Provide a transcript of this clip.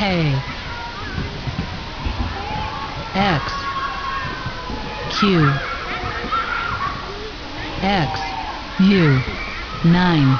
A: X Q X U 9